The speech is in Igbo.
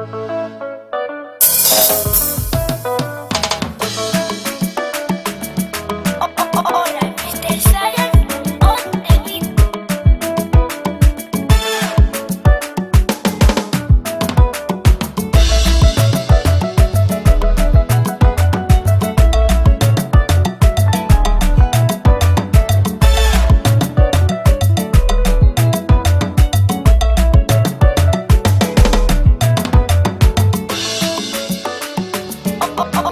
you oh, oh. oh.